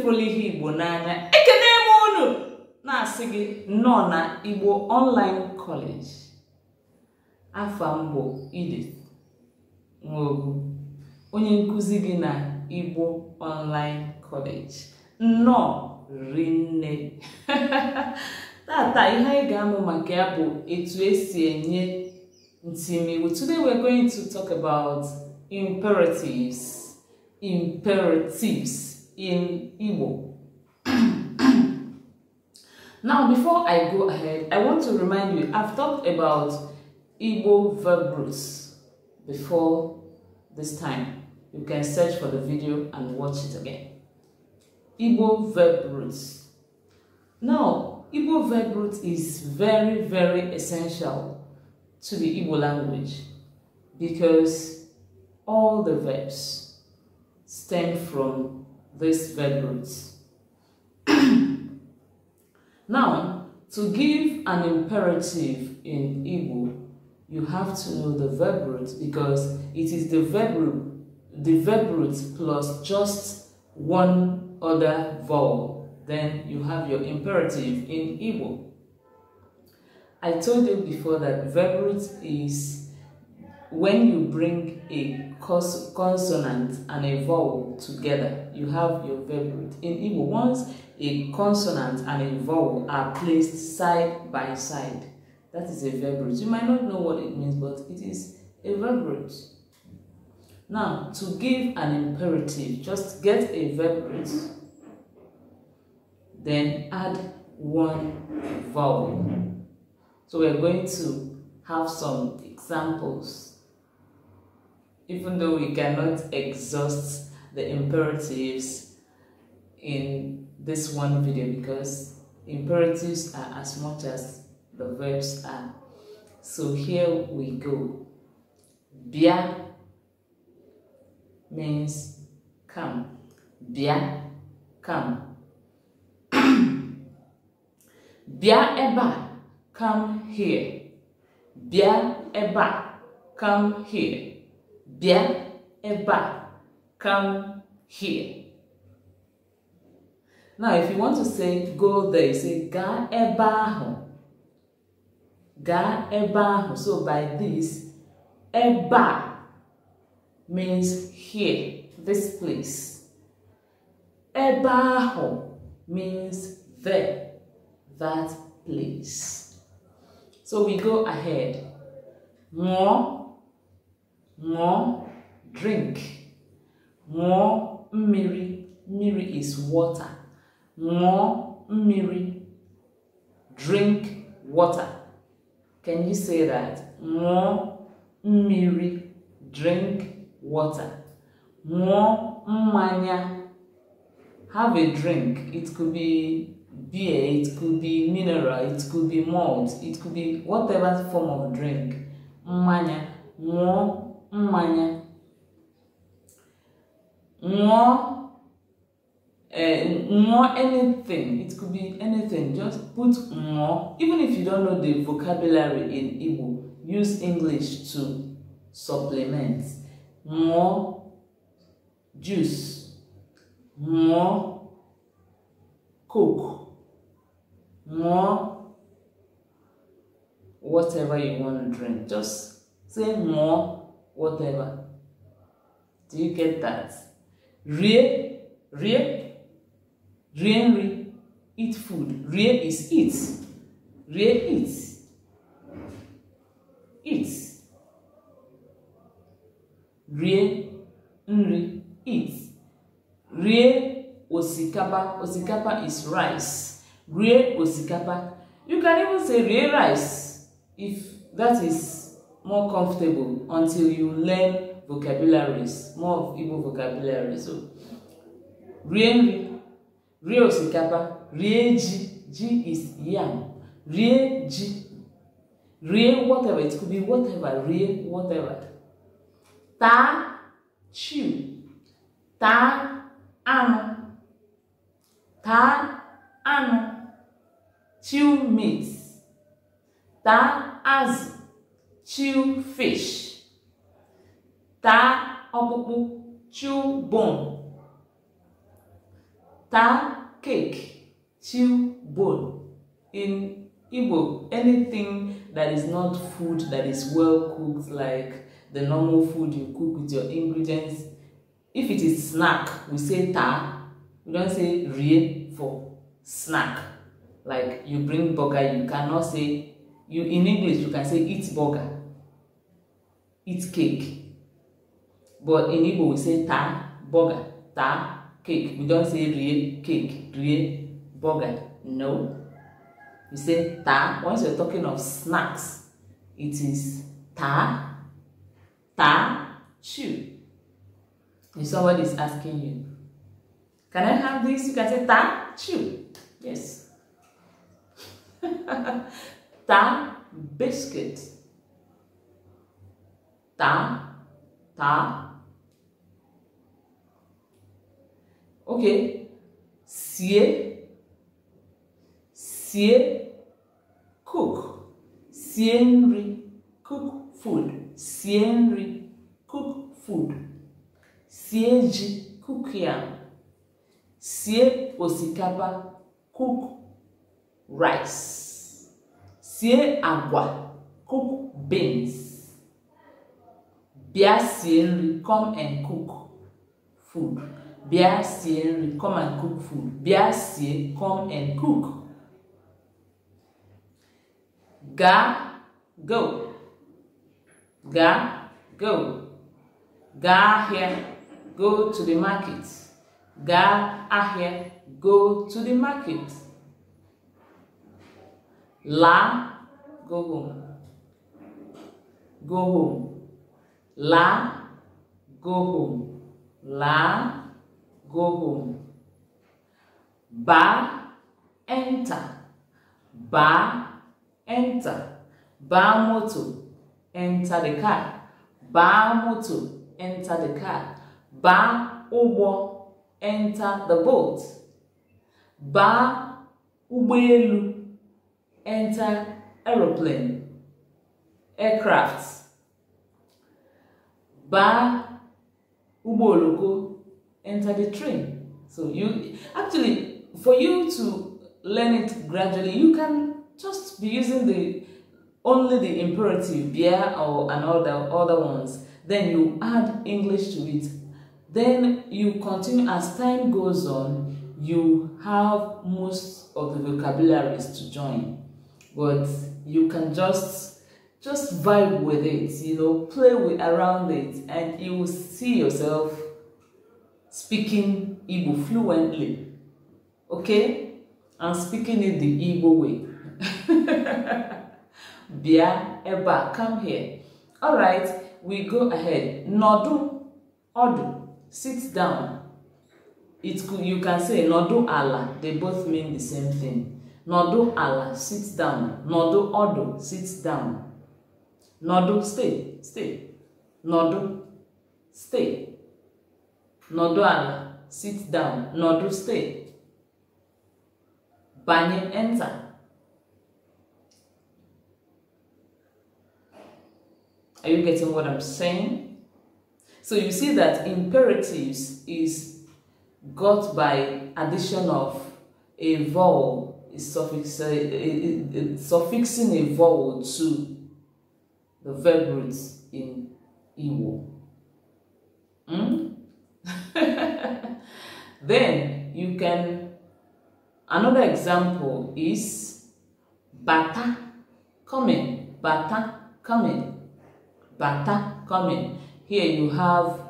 fụlụ ihe igbo n'anya ekene m unu na-asị gị nọ na igbo online kọleji afa mbụ ide onye nkụzi gị na igbo online college nnọọ rinne tata ihe anyị ga-amụ maka ya bụ etu esi enye ntimiwu today we're going to talk about imperatives imperatives in Igbo. now, before I go ahead, I want to remind you, I've talked about Igbo verb roots before this time. You can search for the video and watch it again. Igbo verb roots. Now, Igbo verb root is very, very essential to the Igbo language because all the verbs stem from these values. now, to give an imperative in Igbo, you have to know the verb root because it is the verb root, the verb root plus just one other vowel. Then you have your imperative in Igbo. I told you before that verb root is when you bring a consonant and a vowel together you have your verb In Igbo, once a consonant and a vowel are placed side by side, that is a verb You might not know what it means, but it is a verb Now, to give an imperative, just get a verb then add one vowel. So we're going to have some examples even though we cannot exhaust the imperatives in this one video because imperatives are as much as the verbs are. So here we go. Bia means come. Bia, come. Bia eba, come here. Bia eba, come here. Bia eba, come here. Now, if you want to say go there, you say ga ebaho. Ga ebaho. So by this, eba means here, this place. Ebaho means there, that place. So we go ahead. More, more, drink ṅụọ mmiri mmiri is water ṅụọ mmiri drink water can you say that ṅụọ mmiri drink water ṅụọ mmanya have a drink it could be beer, it could be mineral, it could be malt, it could be whatever form of drink. Mmanya, ṅụọ mmanya wọn more anything it could be anything just put more. even if you don't know the vocabulary in Igbo use English to supplement More juice more coke more whatever you want to drink just say more whatever do you get that rie, rie, re, eat food. Rie is eat. Rie eat. Eat. Rie, nri, eat. Rie osikapa. Osikapa is rice. Rie osikapa. You can even say rie rice if that is more comfortable until you learn vocabularies more of Igbo vocabularies so rie nri rie osikapa rie ji ji is yam rie ji rie whatever it could be whatever rie whatever taa chew taa anụ taa anụ chew meat taa azụ chew fish Ta ọkpụkpụ chew bone taa cake chew bone in igbo anything that is not food that is well cooked like the normal food you cook with your ingredients if it is snack we say ta. we don say rie for snack like you bring burger you cannot say you in english you can say eat burger eat cake but in igbo we say ta burger ta cake we don say rie cake rie burger no we say ta once you're talking of snacks it is ta ta chew if somebody is asking you can i have this you can say ta chew yes ta biscuit ta ta Okay. Sie. Sie. Cook. Sie nri. Cook food. Sie nri. Cook food. Sie ji. Cook yam. Sie osikapa. Cook rice. Sie agwa. Cook beans. Bịa sie nri. Come and cook food bịa sie nri come and cook food bịa sie come and cook gaa go gaa go gaa ahịa go to the market gaa ahịa go to the market laa go home go home laa go home laa go home. Ba enter. Ba enter. Ba moto, enter the car. Ba moto, enter the car. Ba ụgbọ, enter the boat. Ba ụgbọelu, enter aeroplane, aircraft. Ba ụgbọ enter the train. So you actually for you to learn it gradually, you can just be using the only the imperative yeah or and all the other ones. Then you add English to it. Then you continue as time goes on, you have most of the vocabularies to join. But you can just just vibe with it, you know, play with around it and you will see yourself speaking Igbo fluently, okay? And speaking it the Igbo way. Bia, Eba, come here. All right, we go ahead. Nodu, Odu, sit down. It could, you can say Nodu Ala. They both mean the same thing. Nodu Ala, sit down. Nodu Odu, sit down. Nodu, stay, stay. Nodu, stay. nọdụ ala sit down nọdụ stay banye enter Are you getting what I'm saying? So you see that imperatives is got by addition of a vowel, is suffix, uh, uh, uh, suffixing a vowel to the verb roots in Igbo. Hmm? then you can, another example is bata coming, bata coming, bata coming. Here you have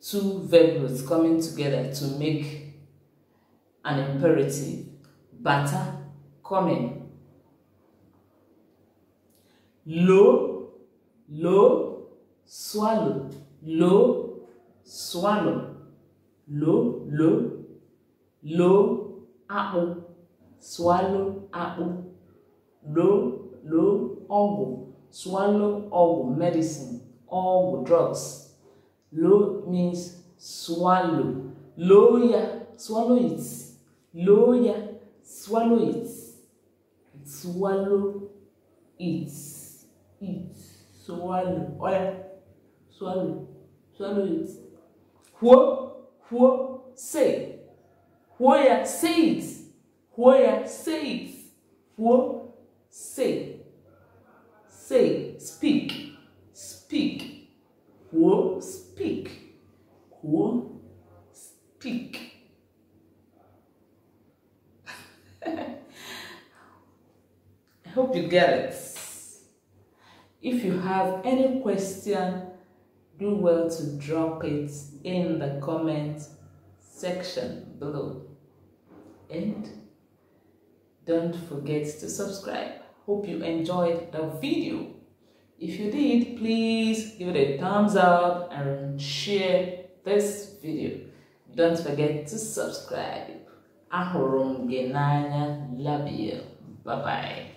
two verb roots coming together to make an imperative. Bata coming. Low, low, swallow, low, swallow, lo, lo, lo, akpụ, swallow akpụ, lo, lo, ọgwụ, swallow ọgwụ, medicine, ọgwụ, drugs. Lo means swallow. Lo ya, swallow it. Lo ya, swallow it. Swallow it. It. Swallow. Oya. Swallow. Swallow it. Huo, huo, say. Huoya, say it. Huoya, say it. Huo, say. Say, speak, speak. Huo, speak. Huo, speak. I hope you get it. If you have any question, do well to drop it in the comment section below. And don't forget to subscribe. Hope you enjoyed the video. If you did, please give it a thumbs up and share this video. Don't forget to subscribe. Ahụrụ genanya gị love you. Bye-bye.